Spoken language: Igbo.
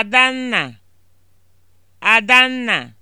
Adanna Adanna